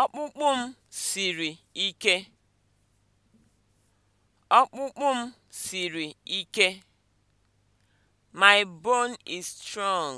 Ọkpụkpụ m siri ike. Ọkpụkpụ My bone is strong.